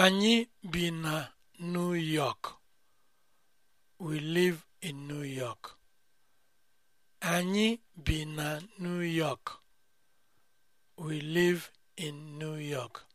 Anyị bi na New York. We live in New York. New York.